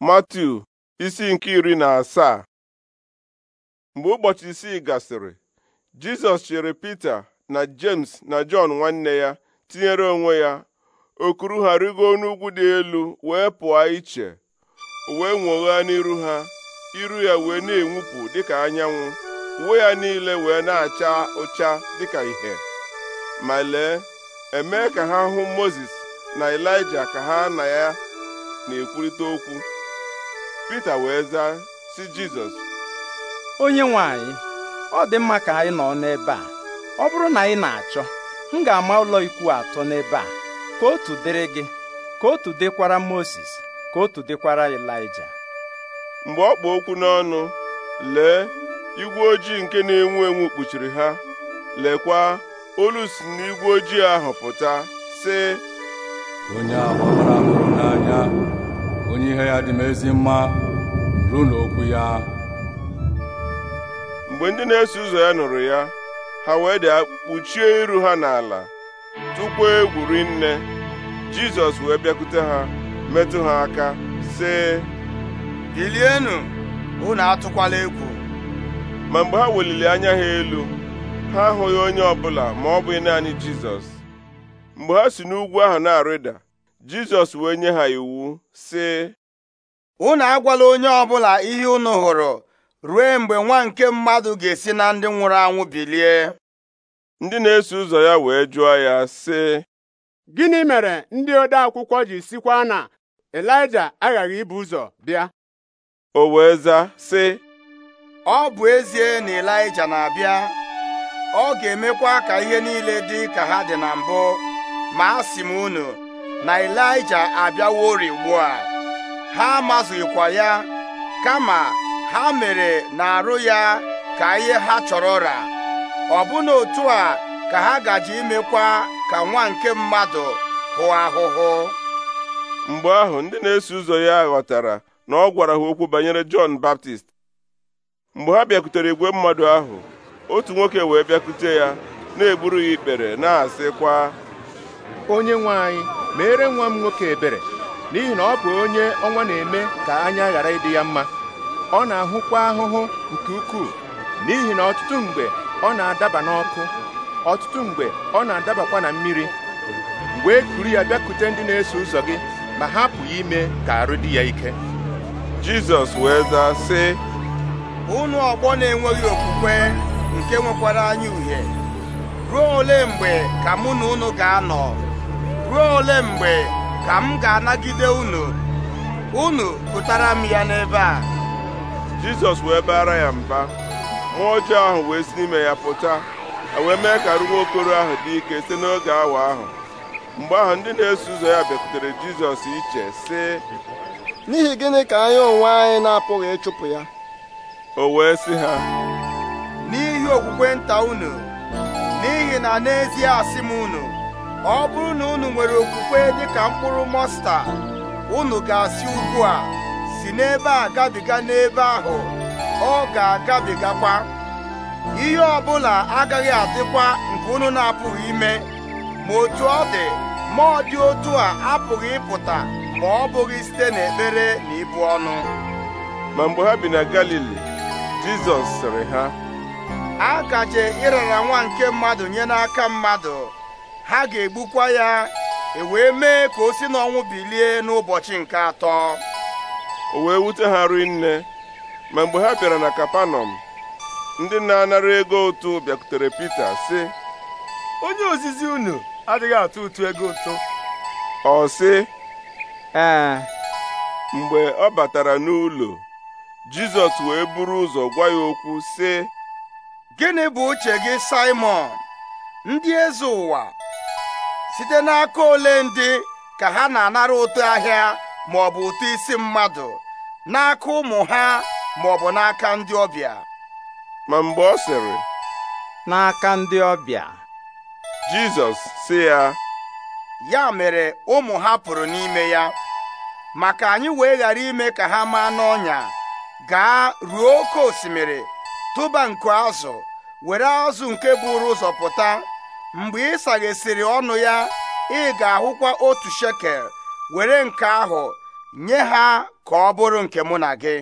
Matthew isi nke iri na asaa mgbe ụbọchị isii gasịrị Jizọs chere Pita na James na Jọn nwanne ya tinyere onwe ya okuru ha rigoo n'ugwu dị elu wee pụọ iche wee nwogha n'iru ha iru ya wee na-enwupụ dịka anyanwụ uwe ya niile wee na-acha ụcha dịka ihe ma lee eme ka ha hụ Mozis na elija ka ha na ya na-ekwurịta okwu Pita wee zaa si Jizọs onye nwanyị, ọ dị mma ka anyị nọ n'ebe a ọ bụrụ na anyị na-achọ m ga-ama ụlọ ikwu atọ n'ebe a ka otu dịrị gị ka otu dịkwara Moses ka otu dịkwara Elija mgbe ọ kpụ okwu n'ọnụ lee igwe ojii nke na-enwu enwu kpuchiri ha lekwa olu si n'igwe ojii ahụ pụta sị onye n'anya onye ihe ya dị m ezi mma ruo n'okwu ya mgbe ndị na-eso ụzọ ya nụrụ ya ha wee dị kpuchie iru ha n'ala tupu egwuri nne jizọs wee bịakwute ha metụ ha aka sị bilienụ unu atụkwala egwu ma mgbe ha weliri anya ha elu ha ahụghị onye ọbụla ma ọ bụghị naanị jizọs mgbe ha si n'ugwu ahụ na-arịda Jizọs wee nye ha iwu sị unu agwala onye ọbụla ihe unu hụrụ ruo mgbe nwa nke mmadụ ga-esi na ndị nwụrụ anwụ bilie ndị na-eso ụzọ ya wee jụọ ya sị gịnị mere ndị ode akwụkwọ ji sikwa na Elija aghaghị ibu ụzọ bịa o wee zaa sị ọ bụ ezie na Elija na-abịa ọ ga-emekwa ka ihe niile dị ka ha dị na mbụ ma a sị m unu na Ịlaịja abịawo ugbu a ha amazighịkwa ya kama ha mere na-arụ ya ka ihe ha chọrọ ra ọbụna otu a ka ha gaji imekwa ka nwa nke mmadụ hụ ahụhụ mgbe ahụ ndị na-eso ụzọ ya ghọtara na ọ gwara ha okwu banyere Jọn Baptist mgbe ha bịakwutere igwe mmadụ ahụ otu nwoke wee bịakute ya na-eburu ya ikpere na-asịkwa onye nwe anyị mere nwa m nwoke ebere n'ihi na ọ bụ onye ọnwa na-eme ka anya ghara ịdị ya mma ọ na-ahụkwa ahụhụ nke ukwuu n'ihi na ọtụtụ mgbe ọ na-adaba n'ọkụ ọtụtụ mgbe ọ na-adabakwa na mmiri wee e kuru ya bịakute ndị na-eso ụzọ gị ma hapụ ya ime ka arụ dị ya ike Jizọs wee zaa sị unu ọgbọ na-enweghị okwukwe nke nwekwara anya uhie ruo ole mgbe ka mụ na unu ga-anọ ruo ole mgbe ka m ga-anagide unu unu pụtara m ya n'ebe a jizọs wee bara ya mba mmụọ ọjọọ ahụ wee si n'ime ya pụta e wee mee ka arụ okoro ahụ dị ike site n'oge awa ahụ mgbe ahụ ndị na-eso ụzọ ya bịakwutere jizọs iche sị n'ihi gịnị ka anyị onwe anyị na-apụghị ịchụpụ ya o wee sị ha n'ihi okwukwe nta unu n'ihi na n'ezie asị m unu ọ bụrụ na unu nwere okwukwe dịka mkpụrụ mọsta unu ga-asị ugbu a si n'ebe a gabiga n'ebe ahụ ọ ga-agabigakwa ihe ọbụla agaghị adịkwa nke unu na-apụghị ime ma otu ọ dị ma ọ dị otu a apụghị ịpụta ma ọ bụghị site n'ekpere na ibu ọnụ ma mgbe ha bi na Galili Jizọs sịrị ha a gaje ịrara nwa nke mmadụ nye n'aka mmadụ ha ga-egbukwa ya e wee mee ka o si n'ọnwụ bilie n'ụbọchị nke atọ o wee wute ha rinne ma mgbe ha bịara na kapanọm ndị na-anara ego ụtụ bịakwutere Pita sị onye ozizi unu adịghị atụ ụtụ ego ụtụ ọ sị mgbe ọ batara n'ụlọ Jizọs wee buru ụzọ gwa ya okwu sị gịnị bụ uche gị Simon ndị eze ụwa site n'aka ole ndị ka ha na-anara ụtụ ahịa ma ọ bụ ụtụ isi mmadụ n'aka ụmụ ha ma ọ bụ n'aka ndị ọbịa ma mgbe ọ sịrị n'aka ndị ọbịa Jizọs sị ya ya mere ụmụ ha pụrụ n'ime ya maka anyị wee ghara ime ka ha maa n'ọnya gaa ruo oke osimiri tụba nku azụ were azụ nke buru ụzọ pụta mgbe ị saghesịrị ọnụ ya ị ga-ahụkwa otu shekel were nke ahụ nye ha ka ọ bụrụ nke mụ na gị